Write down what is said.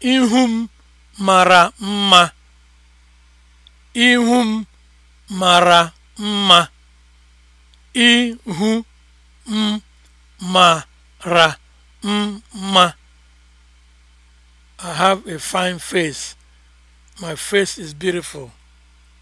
Ihu m mara mma. Ihu m mara mma. Ihu m mara mma. I have a fine face. My face is beautiful.